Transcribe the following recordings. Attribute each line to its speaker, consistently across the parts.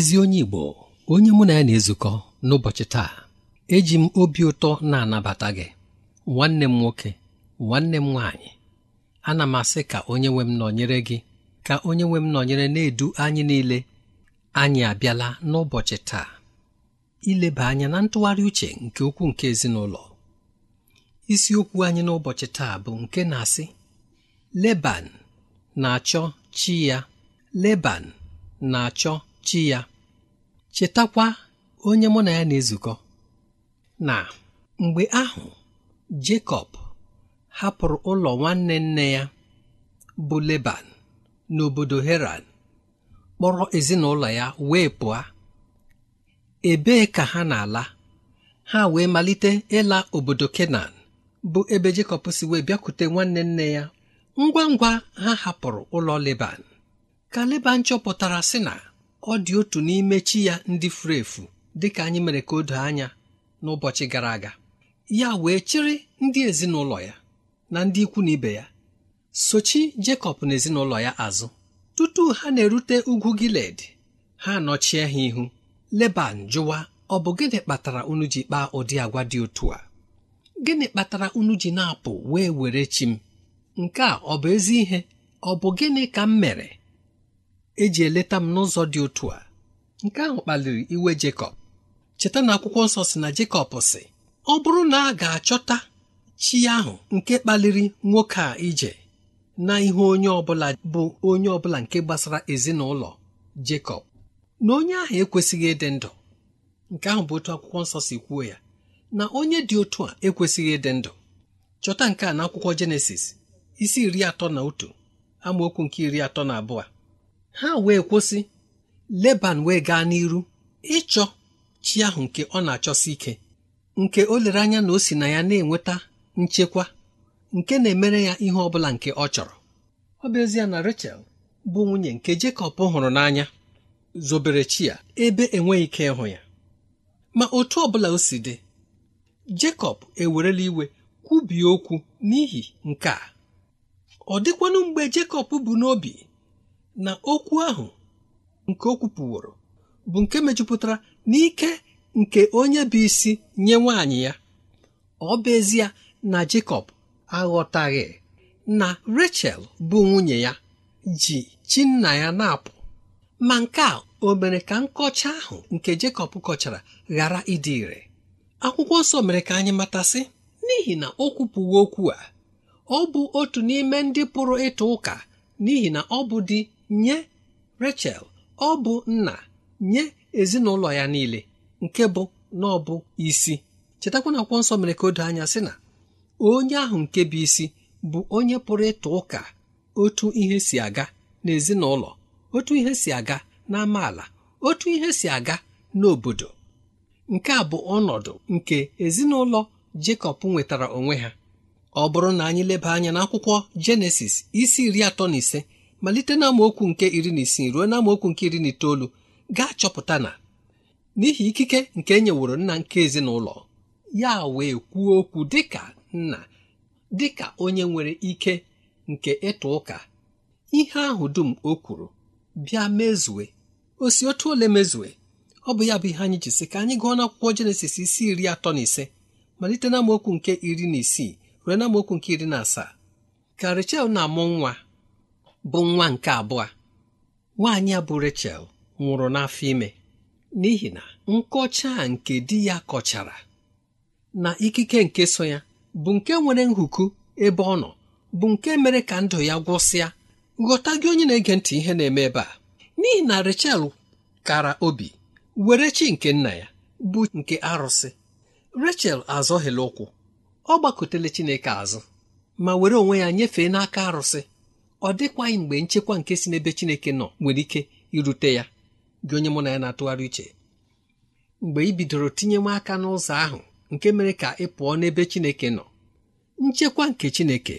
Speaker 1: ezi onye Igbo onye mụ na ya na-ezukọ n'ụbọchị taa eji m obi ụtọ na-anabata gị nwanne m nwoke nwanne m nwaanyị ana m asị ka onye nwe m nọnyere gị ka onye nwe m nọnyere na-edu anyị niile anyị abịala n'ụbọchị taa ileba anya na ntụgharị uche nke ukwu nke ezinụlọ isiokwu anyị n'ụbọchị taa bụ nke na-asị Leban na-achọ chi ya Leban na-achọ chi ya chetakwa onye mụ na ya na-ezukọ na mgbe ahụ Jekọb hapụrụ ụlọ nwanne nne ya bụ Leban n'obodo Heran kpọrọ ezinụlọ ya wee pụọ ebee ka ha na-ala ha wee malite ịla obodo Kenan bụ ebe Jekọb si wee bịakwute nwanne nne ya ngwa ngwa ha hapụrụ ụlọ Leban ka Leban chọpụtara sị na ọ dị otu n'ime chi ya ndị furu efu dịka anyị mere ka o doo anya n'ụbọchị gara aga ya wee chịrị ndị ezinụlọ ya na ndị ikwu na ibe ya sochi Jekọb na ezinụlọ ya azụ tutu ha na-erute ugwu Giled ha nọchie ha ihu Leban jụwa ọ bụ gịnị kpatara unu ji kpaa ụdị agwa dị otu a gịnị kpatara unu ji na-apụ wee were chi m nke a ọ bụ ezi ihe ọ bụ gịnị ka m mere eji eleta m n'ụzọ dị otu a nke ahụ kpaliri iwe Jekọb cheta na akwụkwọ nsọ si na Jekọb sị ọ bụrụ na a ga-achọta chi ahụ nke kpaliri nwoke a ije na ihe onye ọbụla bụ onye ọbụla nke gbasara ezinụlọ Jekọb na onye ahụ ekwesịghị ịdị ndụ nke ahụ bụ otu akwụkwọ nsọ si kwuo ya na onye dị otu a ekwesịghị ịdị ndụ chọta nke a n'akwụkwọ Jenesis isi iri atọ na otu amaokwu nke iri atọ na abụọ ha wee kwụsị leban wee gaa n'iru ịchọ chi ahụ nke ọ na-achọsi ike nke o lere anya na o si na ya na-enweta nchekwa nke na-emere ya ihe ọ bụla nke ọ chọrọ ọ bụ ezie na Rachel bụ nwunye nke Jekọb hụrụ n'anya zobere chi ya ebe enweghị ike ịhụ ya ma otu ọ bụla o si dị Jekọb ewerela iwe kwubie okwu n'ihi nke a ọ dịkwanụ mgbe Jekọb bụ n'obi na okwu ahụ nke o kwupụworo bụ nke mejupụtara n'ike nke onye bụ isi nye nwaanyị ya ọ bụ ezie na Jekọb aghọtaghị na Rachel bụ nwunye ya ji chi nna ya na-apụ ma nke a o mere ka nkọcha ahụ nke Jekọb kọchara ghara ịdị ire akwụkwọ nsọ mere ka anyị matasị n'ihi na o kwupụwo okwu a ọ bụ otu n'ime ndị pụrụ ịtụ ụka n'ihi na ọ bụ di nye rachel ọ bụ nna nye ezinụlọ ya niile nke bụ na ọ bụ isi chetakwana akwụkwọ nsọ mere ka o doo anya sị na onye ahụ nke bụ isi bụ onye pụrụ ịtụ ụka otu ihe si aga n'ezinụlọ otu ihe si aga na amaala otu ihe si aga n'obodo nke a bụ ọnọdụ nke ezinụlọ Jekọb nwetara onwe ha ọ bụrụ na anyị leba anya n'akwụkwọ Jenesis isi iri atọ na ise malite na amaokwu nke iri na isii ruo na nke iri na itoolu gaa chọpụta na n'ihi ikike nke e nyeworo nna nke ezinụlọ ya wee kwuo okwu dịka nna dịka onye nwere ike nke ịtụ ụka ihe ahụ dum o kwuru bịa mezue osi otu ole mezue ọ bụ ya bụ ihe anyị ji sị ka anyị gụọ na akwụkwọ jenesis isi iri atọ na ise malite na amaokwu nke iri na isii ruo na nke iri na asaa ka Rechel na-amụ nwa bụ nwa nke abụọ nwaanyị a bụ Rachel nwụrụ n'afọ ime n'ihi na nkọcha nke di ya kọchara na ikike nke so ya bụ nke nwere nhuku ebe ọ nọ bụ nke mere ka ndụ ya gwụsịa ghọta gị onye na-ege ntị ihe na-eme ebe a n'ihi na Rachel kara obi were chi nke nna ya bụ nke arụsị Rachel azọghịla ụkwụ ọ gbakọtele Chineke azụ ma were onwe ya nyefee n'aka arụsị ọ dịkwaghị mgbe nchekwa nke si n'ebe Chineke nọ nwere ike irute ya gị onye mụ na ya na-atụgharị uche mgbe ị bidoro tinyewe aka n'ụzọ ahụ nke mere ka ị pụọ n'ebe Chineke nọ nchekwa nke Chineke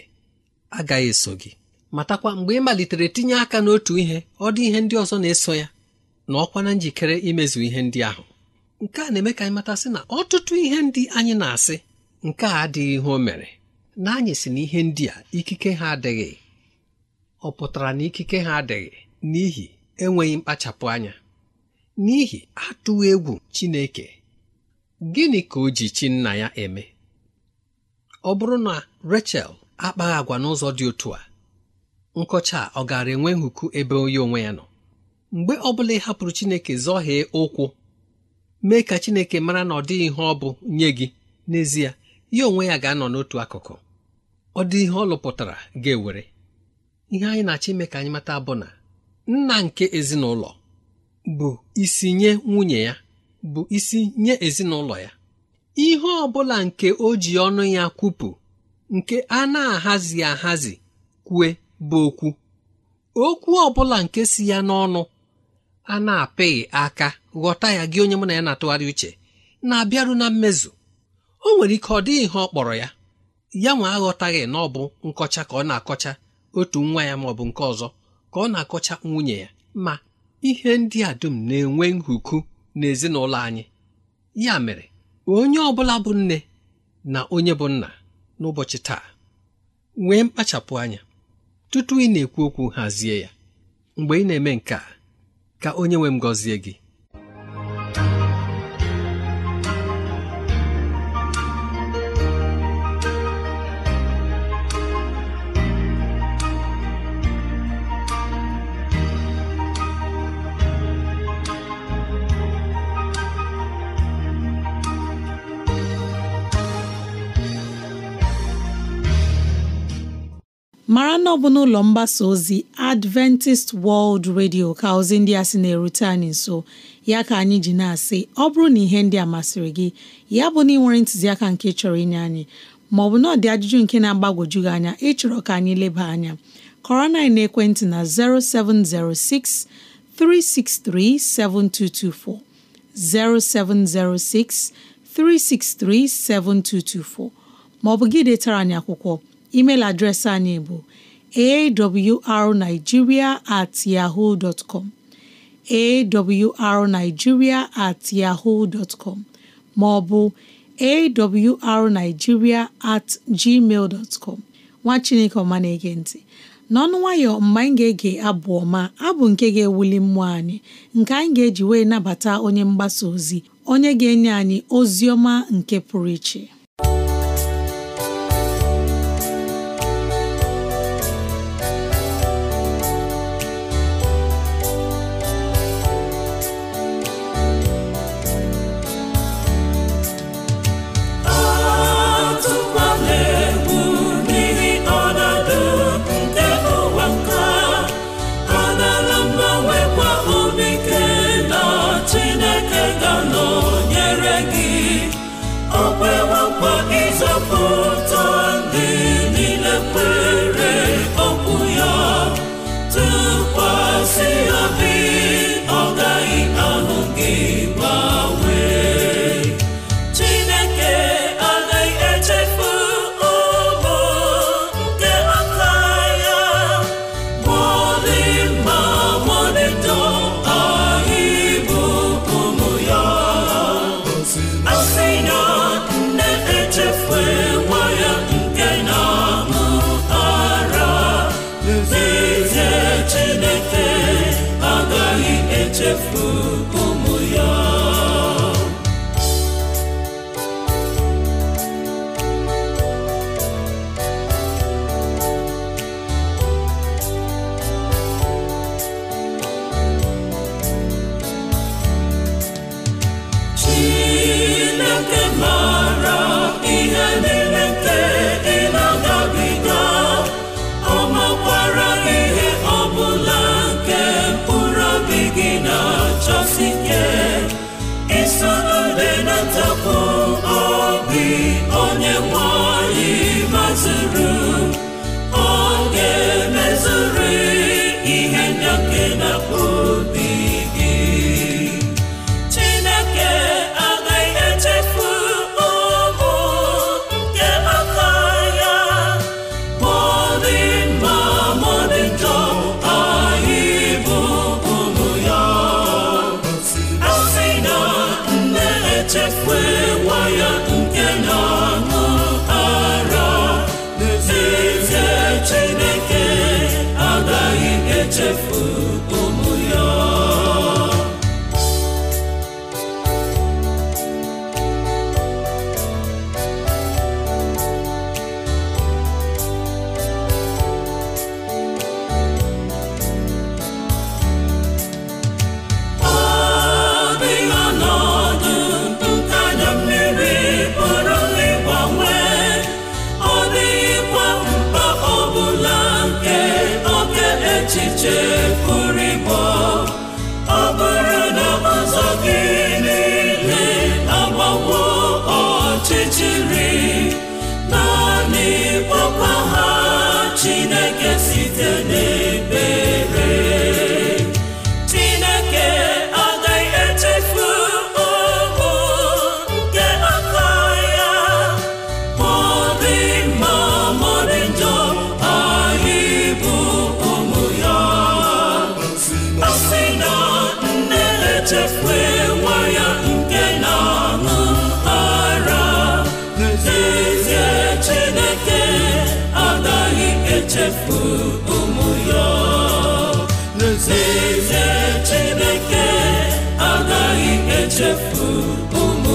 Speaker 1: agaghị eso gị matakwa mgbe ị malitere tinye aka n'otu ihe ọ dị ihe ndị ọzọ na-eso ya na ọkwa na njikere imezu ihe ndị ahụ nke a na-eme ka anyị matasị na ọtụtụ ihe ndị anyị na-asị nke a adịghị ihe o mere na anyị si na ihe ndị a ikike ha adịghị ọ pụtara na ikike ha adịghị n'ihi enweghị mkpachapụ anya n'ihi atụwo egwu Chineke gịnị ka o ji chi nna ya eme ọ bụrụ na Rachel akpaghị agwa n'ụzọ dị otu a nkọcha a ọ gaara enwe nhuku ebe onye onwe ya nọ mgbe ọ bụla ị hapụrụ Chineke zọhie ụkwụ mee ka Chineke mara na ọ dịghị ihe ọ bụ nye gị n'ezie ya onwe ya ga-anọ n'otu akụkụ ọ dị ihe ọ lụpụtara ga-ewere ihe anyị na-achọ ime ka anyị mata bụ na nna nke ezinụlọ bụ isi nye nwunye ya bụ isi nye ezinụlọ ya ihe ọ bụla nke o ji ọnụ ya kwupụ nke a na-ahazi ahazi kwue bụ okwu okwu ọ bụla nke si ya n'ọnụ a na-apịghị aka ghọta ya gị onye mụ na ya na-atụgharị uche na-abịaru na mmezu o nwere ike ọ dịghị ihe ọ kpọrọ ya ya nwa aghọtaghị na ọ bụ nkọcha ka ọ na-akọcha otu nwa ya maọbụ nke ọzọ ka ọ na-akọcha nwunye ya ma ihe ndị a dum na-enwe nhuku n'ezinụlọ anyị ya mere onye ọbụla bụ nne na onye bụ nna n'ụbọchị taa nwee mkpachapụ anya tutu ị na-ekwu okwu hazie ya mgbe ị na-eme nke ka onye nwe m gị
Speaker 2: ebe ọ bụ n'ụlọ mgbasa ozi Adventist World Radio ka ozi ndị a sị na-erute anyị nso ya ka anyị ji na-asị ọ bụrụ na ihe ndị a masịrị gị ya bụ na ị nwere ntụziaka nke chọrọ inye anyị maọbụ ọ bụ dị ajụjụ nke na-agbagwoju gị anya ịchọrọ ka anyị leba anya kọrọ na ekwentị na 0706 363 7224 0706 363 7224 maọbụ gị detara anyị akwụkwọ email adreesị anyị bụ awrnigeria at yahoo dot com at yahoo dot maọbụ awrnigeria at gmail dot nwa chineke ọma na-ege ntị n'ọnụ nwayọ mgbe anyị ga-ege abụ ọma abụ nke ga-ewuli mmụọ anyị nke anyị ga-eji wee nabata onye mgbasa ozi onye ga-enye anyị ozi ọma nke pụrụ iche
Speaker 3: echefu ụmụ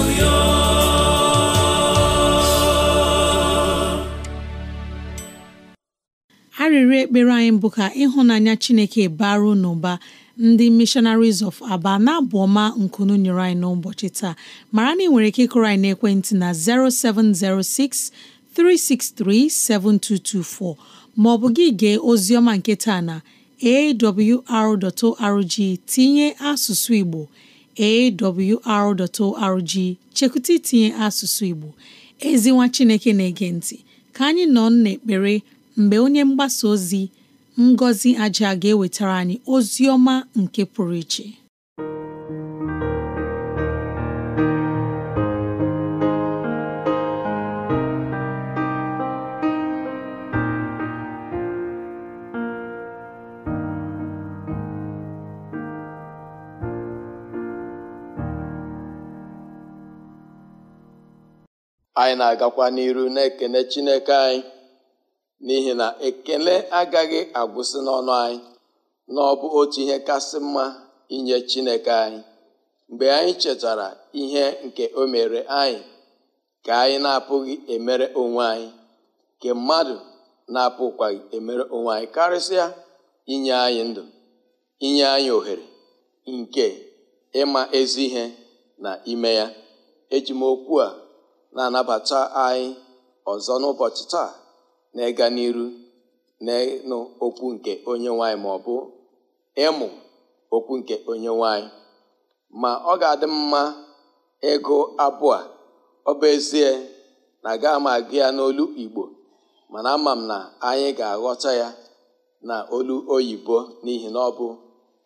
Speaker 2: ekpere anyị bụ ka ịhụnanya Chineke baruo n'ụba ndị missionaries of aba na-abụ ọma nkunu nyere anyị n'ụbọchị taa mara na ị nwere ike ịkụrụ anyị n'ekwentị na 0706 363 7224 maọbụ gị gee oziọma nke taa na awr.org tinye asụsụ Igbo awr.org chekwụta itinye asụsụ Igbo ezinwa Chineke na-ege ntị ka anyị nọ n'ekpere mgbe onye mgbasa ozi ngozi Aja ga-ewetara anyị ozi ọma nke pụrụ iche
Speaker 4: anyị na-agakwa n'iru na-ekene chineke anyị n'ihi na ekele agaghị agwụsị n'ọnụ anyị na ọ bụ otu ihe kasị mma inye chineke anyị mgbe anyị chetara ihe nke o mere anyị ka anyị na-apụghị emere onwe anyị nke mmadụ na-apụkwaghị emere onwe anyị karịsịa inye anyị ndụ inye anyị ohere nke ịma ezi ihe na ime ya eji okwu a na-anabata anyị ọzọ n'ụbọchị taa na ịga n'iru na ịnụ okwu nke onye nwanyị ma ọ bụ ịmụ okwu nke onye nwanyị ma ọ ga-adị mma ịgụ abụọ ọ bụ ezie na gaa m agụ ya n'olu Igbo mana ama m na anyị ga-aghọta ya na olu oyibo n'ihi na ọ bụ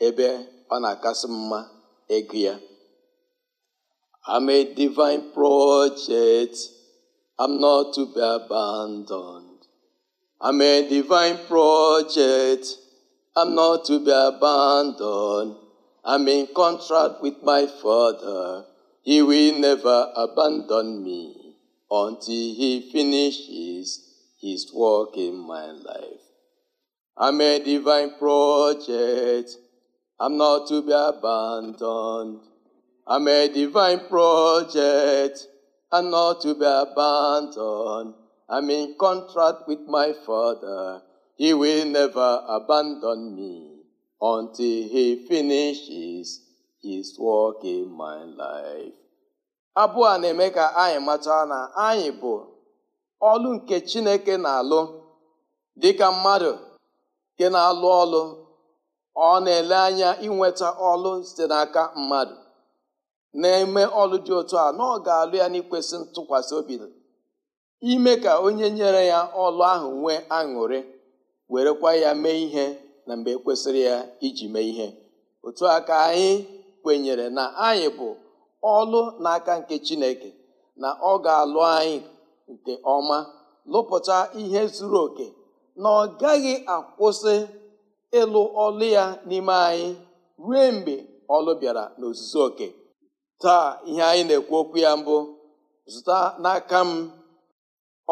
Speaker 4: ebe ọ na-akasị mma ịgụ ya I'm a divine project. I'm not to be abandoned. I'm a divine project. I'm not to be abandoned. I'm in contract with my Father. He will never abandon me until He finishes His work in my life. I'm a divine project. I'm not to be abandoned. I'm a divine project and not to be abandoned. I'm in contract with my Father. He will never abandon me until He finishes His work in my life. Abụọ a na-eme ka anyị mata na anyị bụ ọlụ nke Chineke na-alụ dịka mmadụ nke na-alụ ọlụ ọ na-ele anya inweta ọlụ site n'aka mmadụ na-eme ọlụ dị otu a na ọ ga-alụ ya n'ikwesị ntụkwasị obi ime ka onye nyere ya ọlụ ahụ nwee aṅụrị werekwa ya mee ihe na mgbe ekwesịrị ya iji mee ihe otu aka ka anyị kwenyere na anyị bụ ọlụ n'aka nke chineke na ọ ga-alụ anyị nke ọma lụpụta ihe zuru oke na ọ gaghị akwụsị ịlụ ọlụ ya n'ime anyị ruo mgbe ọlụ bịara n'ozuzu oke taa ihe anyị na-ekwu okwu ya mbụ zụta n'aka m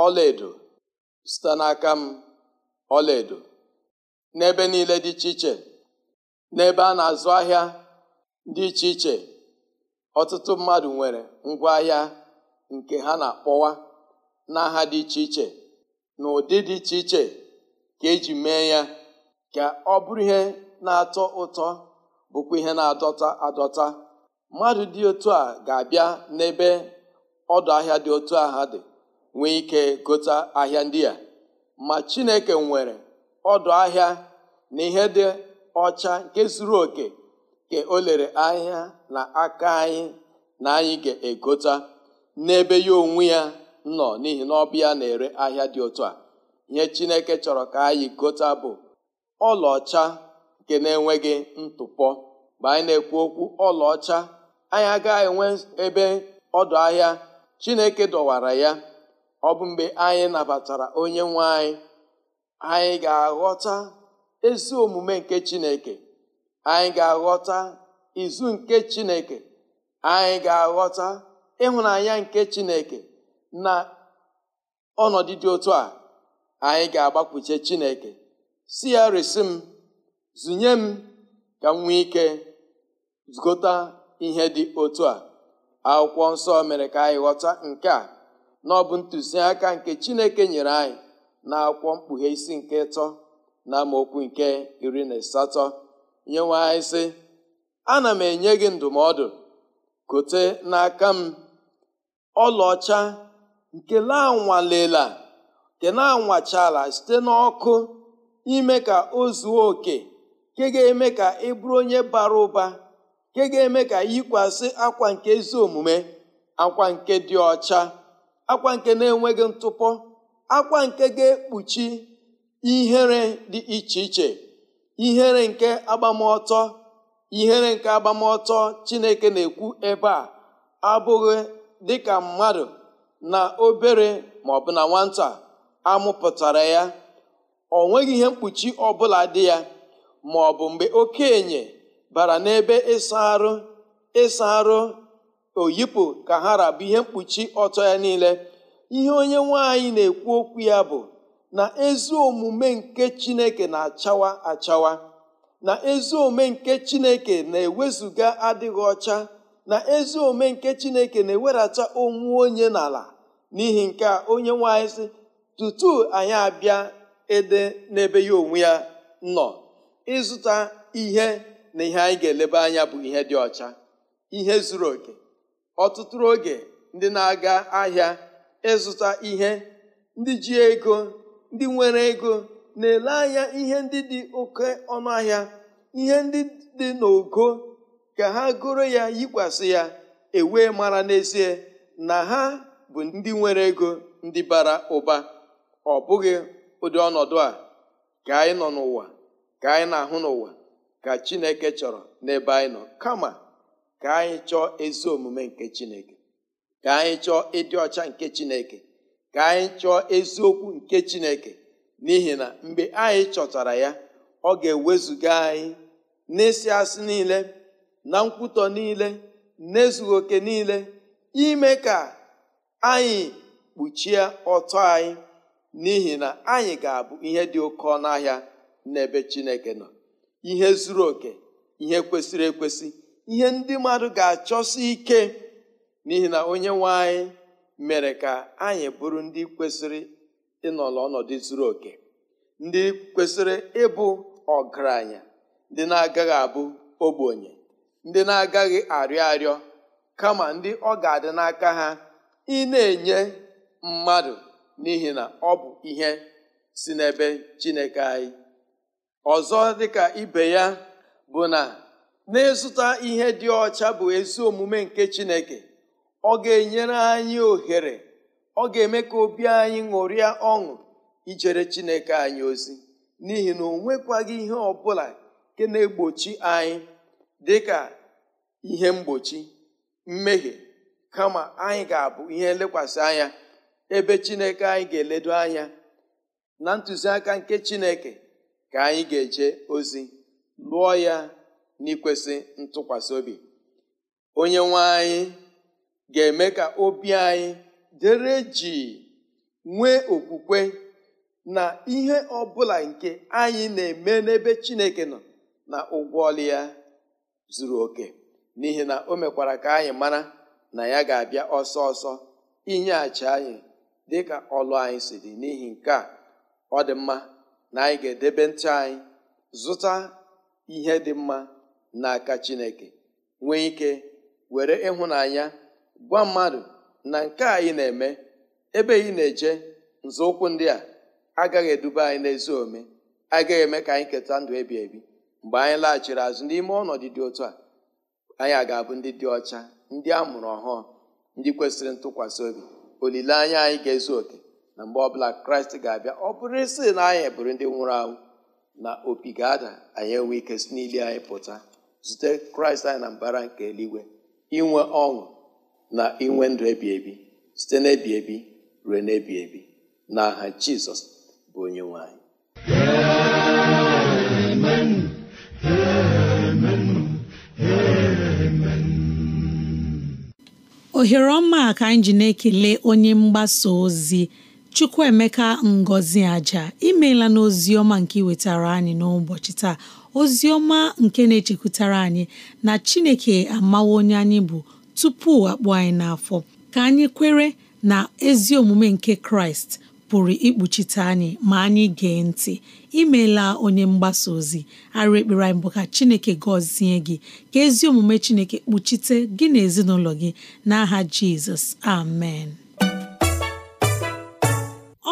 Speaker 4: ọlaedo zụta n'aka m ọlaedo n'ebe niile dị iche iche n'ebe a na-azụ ahịa dị iche iche ọtụtụ mmadụ nwere ngwaahịa nke ha na-akpọwa n'aha dị iche iche na ụdị dị iche iche ka eji mee ya ka ọ bụrụ ihe na-atọ ụtọ bụkwa ihe na-adọta adọta mmadụ dị otu a ga-abịa n'ebe ọdụ ahịa dị otu a ha dị nwee ike gota ahịa ndị a ma chineke nwere ọdụ ahịa na ihe dị ọcha nke zuru oke ka o lere ahịa na aka anyị na anyị ga-egota n'ebe ya onwe ya nọ n'ihi na ọbịa na-ere ahịa dị otu a ihe chineke chọrọ ka anyị gota bụ ọlaọcha nke na-enweghị ntụpọ mgbe anyị na-ekwu okwu ọlaọcha anyị agaghị enwe ebe ọdụ ahịa chineke dọwara ya ọ bụ mgbe anyị nabatara onye nwe anyị anyị ga-aghọta ezi omume nke chineke anyị ga-aghọta izu nke chineke anyị ga-aghọta ịhụnanya nke chineke na ọnọdụ dị otu a anyị ga-agbakwuche chineke si ya resi m zụnye m ka m nwee ike ihe dị otu a akwụkwọ nsọ mere ka anyị ghọta nke a na ọ bụ ntụziaka nke chineke nyere anyị na akwụkwọ mkpughe isi nke ịtọ na amaokwu nke iri na asatọ nyenwe anyị sị ana m enye gị ndụmọdụ kote n'aka m ọlaọcha nke na-anwalela nke na-anwachala site n'ọkụ ime ka o zuo oke nke ga-eme ka ị bụrụ onye bara ụba nke ga-eme ka yikwasị akwa nke ezi omume akwa nke dị ọcha akwa nke na-enweghị ntụpọ akwa nke ga-ekpuchi ihere dị iche iche ihere nke agbamọtọ ihere nke agbamọtọ chineke na-ekwu ebe a abụghị dịka mmadụ na obere ma ọ bụ na nwata amụpụtara ya ọ nweghị ihe mkpuchi ọbụla dị ya ma ọ bụ mgbe okenye bara n'ebe ịsa arụ ịsa arụ oyipụ ka ha rabụ ihe mkpuchi ọtọ ya niile ihe onye nwanyị na-ekwu okwu ya bụ na ezi omume nke chineke na-achawa achawa na ezi omume nke chineke na-ewezuga adịghị ọcha na ezi omume nke chineke na-ewerata onwe onye n'ala n'ihi nke a onye nwanyị sị tutu anyị abịa ede n'ebe ya onwe ya nọ ịzụta ihe na ihe anyị ga-eleba anya bụ ihe dị ọcha ihe zuru oke ọtụtụ oge ndị na-aga ahịa ịzụta ihe ndị ji ego ndị nwere ego na-ele anya ihe ndị dị oke ọnụ ahịa ihe ndị dị n'ogo ka ha goro ya yikwasị ya ewe mara n'ezie na ha bụ ndị nwere ego ndị bara ụba ọ bụghị ụdị ọnọdụ a ka anyị nọ n'ụwa ka anyị na-ahụ n'ụwa ka chineke chọrọ n'ebe anyị nọ kama ka anyị chọọ ezi omume nke chineke ka anyị chọọ ịdị ọcha nke chineke ka anyị chọọ eziokwu nke chineke n'ihi na mgbe anyị chọtara ya ọ ga-ewezuga anyị n'ịsị asị niile na nkwutọ niile n'ezughị oke niile ime ka anyị kpuchie ọtọ anyị n'ihi na anyị ga-abụ ihe dị oke ọnụ ahịa n'ebe chineke nọ ihe zuru oke ihe kwesịrị ekwesị ihe ndị mmadụ ga-achọsi ike n'ihi na onye nwe anyị mere ka anyị bụrụ ndị kwesịrị ịnọrọ ọnọdụ zuru oke ndị kwesịrị ịbụ ọgaranya ndị na-agaghị abụ ogbenye ndị na-agaghị arịọ arịọ kama ndị ọ ga-adị n'aka ha ị na-enye mmadụ n'ihi na ọ bụ ihe si n'ebe Chineke anyị ọzọ dịka ibe ya bụ na na ihe dị ọcha bụ ezi omume nke chineke ọ ga-enyere anyị ohere ọ ga-eme ka obi anyị ṅụrịa ọṅụ ijere chineke anyị ozi n'ihi na onwekwaghị ihe ọbụla nke na-egbochi anyị dịka ihe mgbochi mmehie kama anyị ga-abụ ihe nlekwasị anya ebe chineke anyị ga-eledo anya na ntụziaka nke chineke ka anyị ga-eje ozi lụọ ya n'ikwesị ntụkwasị obi onye nwe anyị ga-eme ka obi anyị dere ji nwee okwukwe na ihe ọbụla nke anyị na-eme n'ebe Chineke nọ na ụgwọ ọlụ ya zuru oke n'ihi na o mekwara ka anyị mara na ya ga-abịa ọsọ ọsọ inyeghachi anyị dịka ọlụ anyị si dị n'ihi nke a ọ dị mma na anyị ga-edebe ntị anyị zụta ihe dị mma n'aka Chineke nwee ike were ịhụnanya gwa mmadụ na nke anyị na-eme ebe anyị na-eje nzọụkwụ ndị a agaghị eduba anyị n'ezi ome agaghị eme ka anyị keta ndụ ebi ebi mgbe anyị laghachiri azụ n'ime ọnọdụ dị otu a anyị a ga-abụ ndị dị ọcha ndị a mụrụ ọhụụ ndị kwesịrị ntụkwasị obi olileanya anyị ga-ezu oke na mgbe ọbụla kraịst ga-abịa ọ bụrụ isi na e anyị e bụrụ ndị nwụrụ anwụ na opi ga-ada anyị enwe ike si n'ili anyị pụta zute kraịst anyị na mbara nke eluigwe inwe ọṅụ na inwe ndụ ebi ebi site n'ebi ebi ruo n'ebi ebi na aha jizọs bụ onye nwanyị
Speaker 2: ohere ọma ka anyị ji na-ekele onye mgbasa ozi Chukwuemeka Ngozi Aja imeela n'ozi ọma nke iwetara anyị n'ụbọchị taa ozi ọma nke na-echekwutara anyị na Chineke amawo onye anyị bụ tupu akpụ anyị n'afọ ka anyị kwere na ezi omume nke Kraịst pụrụ ikpuchite anyị ma anyị gee ntị imeela onye mgbasa ozi arụ ekpere anyị bụ ka Chineke gọzie gị ka ezi omume Chineke kpuchite gị na ezinụlọ gị n'aha Jizọs amen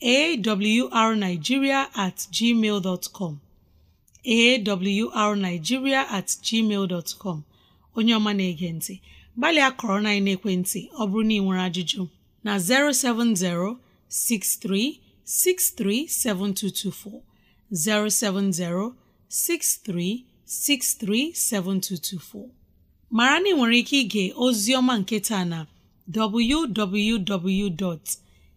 Speaker 2: awrnigeria at gmail com awrnigeria at gmail onye ọma na-ege ntị gbalịa kọrọ na ekwentị ọ bụrụ na ị nwere ajụjụ na 07063637224 mara na ị nwere ike ige ozi ọma nke taa na www.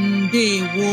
Speaker 2: ndewo